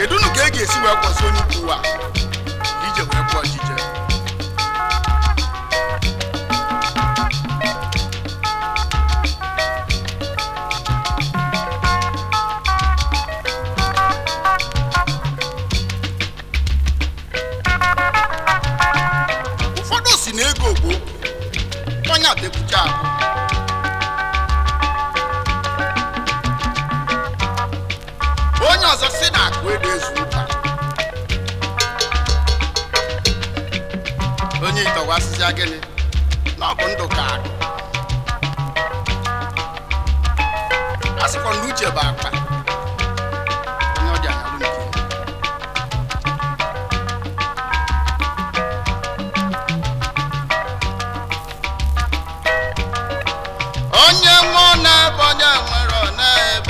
kedu unu ka e ga-esi wee kwọsi onye ukwu ụwa ije wee kwụọ ọchịchị ụfọdụ si na ego bụ onye adekwucha ahụ onye ịtọwasịsịa gịnị na ọ bụ ndụ ka akụ a uche bụ akpa onye ọbịa na nke onye nwe na-ebe onye nwere ọ na-ebe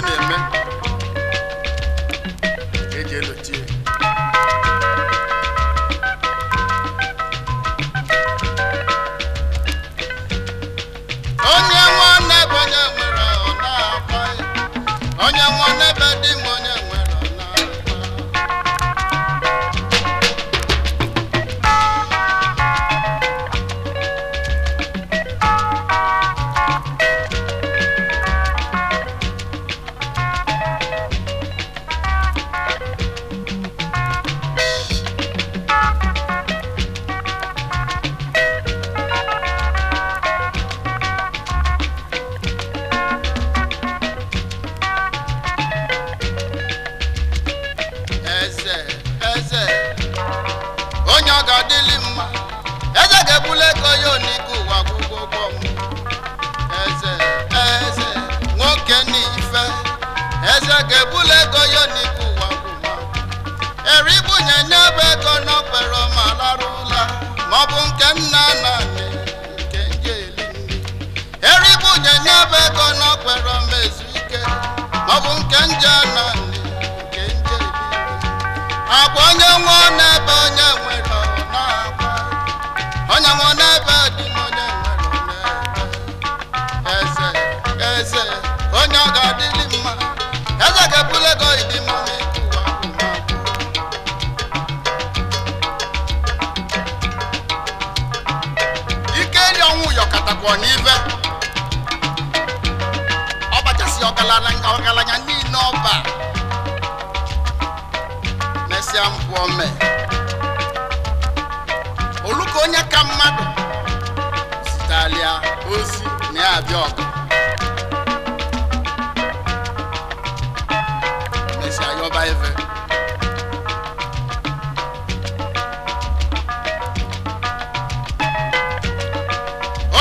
na-eme ka eji elochie nke nje na nke nje onye nwe n'ebe onye nwere na onye nwe n'ebe dị onye nwere eze eze onye ọ ga-adịlị mma eze ga-ebule ịdị mma ike ọbịa oluka onye ka mmadụ zitalia ozi na ya abịa ọgụ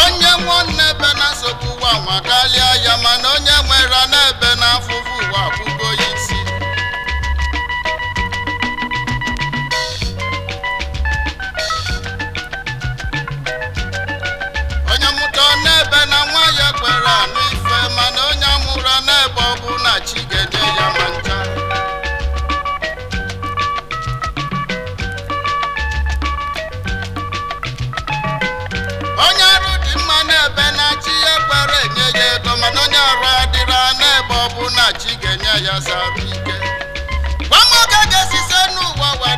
onye nwanne ebe na-asọpụ nwa ya mana onye nwere n'ebe na-afụfụ ụwa akwụkwọ. mgbe ọbụ na chi ya ma onye ọrụ dị mma n'ebe na ya e kwere enye ya ego mana onye arụ adịra ọbụ na ga-enye ya sara ike gwa n'ụwa wa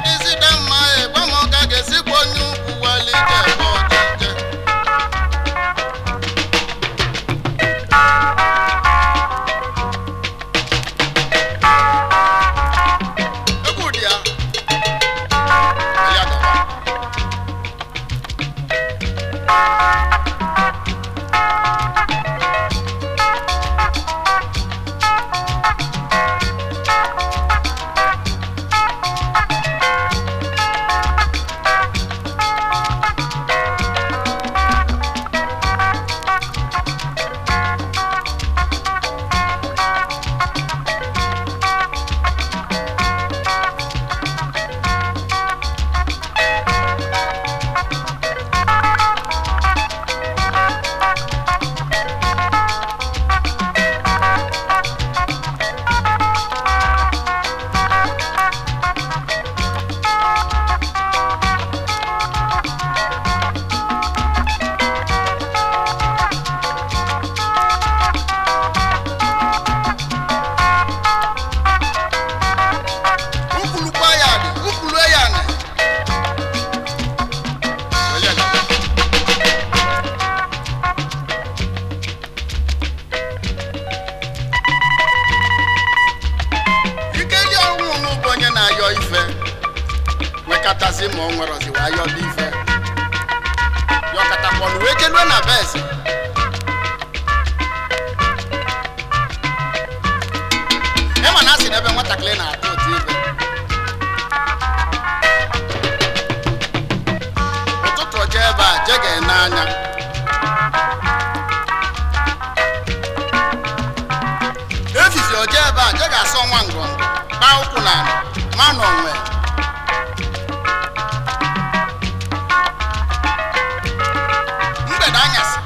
o jee ebe a je ga-asọ nwa ngọngọ kpaa ụkwụ na ma n'onwe mgbede anyasị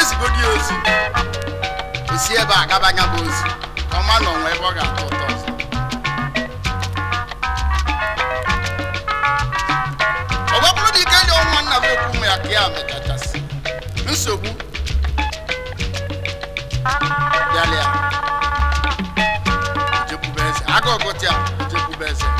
ezigodi ozi esi ebe a gaba anya bụ ozi ka ọma n'onwe ebe ọ ga-atọ ụtọ ọzọ ọ dị ike nye nwa nna m ụmụ ya ka ya mechachasị nsogbu pati a jekwube eze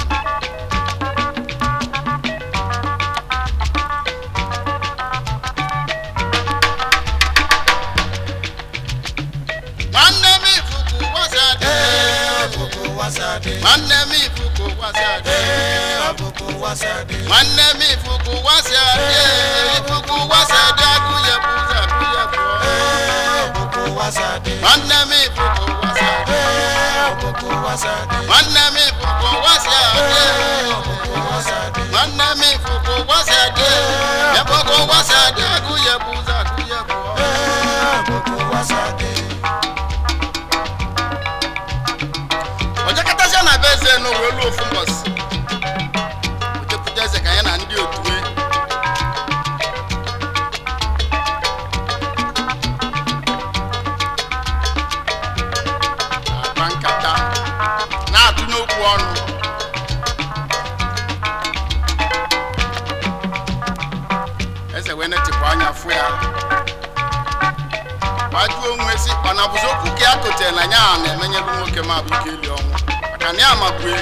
nwoke ma abụ ike ili ọnwụ maka na ya mabue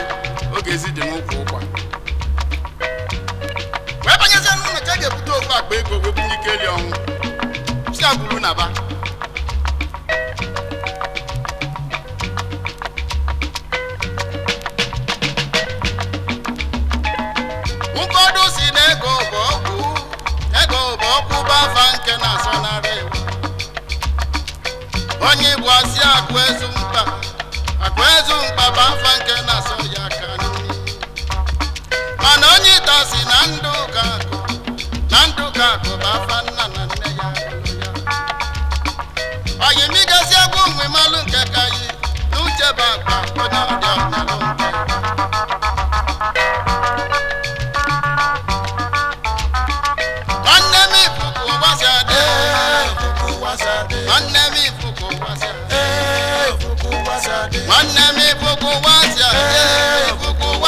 oge ezi dị n'ụkwụ ụkwa wee banyezie n'ụlọ ka e ga-ebute ofu akpa ego wee bụ ike ili ọnwụ na ba ụfọdụ si na ego nke na onye igbo asị akụ ezu mkpaba mfa nke na-asọ ya aka mana onye ịta si na ndụ ga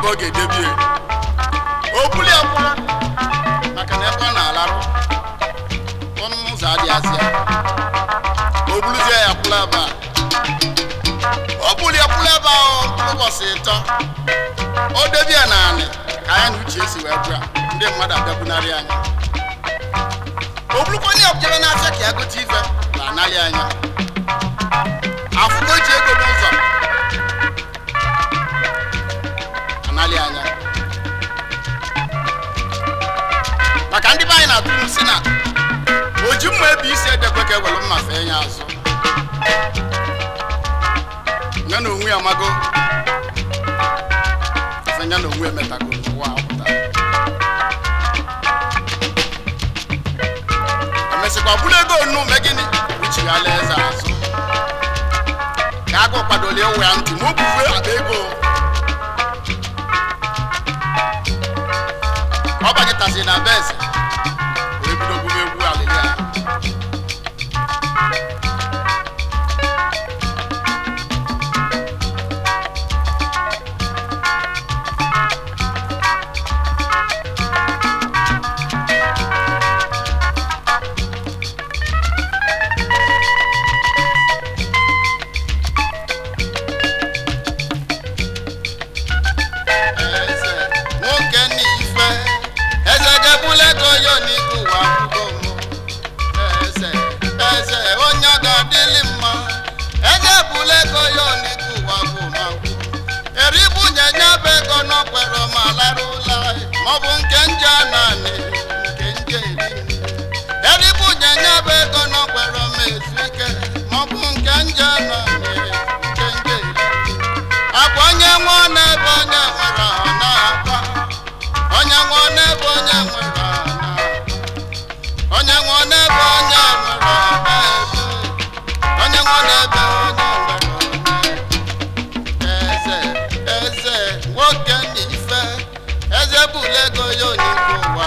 ebe ọ ga-edebie maka na ebe ọ na-alarụ ọnụ ụzọ adịghịzị ya o buluzie ya kwụla ebe ọ o buli ya kwụla ebe ịtọ o debie ya ka anyị na uche esi wee bụa ndị mmadụ abịakwunarị anya o burukwa onye ọbụjere na-acha ka ya gote na anaghị anya aka ewelu mma fee ya azụ ya na onwe ya amago ya na onwe ya emetago n'ụwa apụta emesịkwa bụrụ ego onu me gịnị uchighara eze azụ ka agụ kwadolie ụwa ya ntị ma akpa ego ọ bagịtasị na be eze ọ bụ nke nje naanị nke nje eri eribụ nyenya bụ ego n'ọgbara m ezu ike ma ọ bụ nke nje naanị nke nje eri abụ onye nwe n'ebe onye nwere ha na-akwa onye nwe n'ebe onye nwere ha na onye nwe n'ebe onye nwere ha na-ebu onye nwe n'ebe onye nwere ha na eze eze nwoke n'ife. tebụl ego ya onye nke ụwa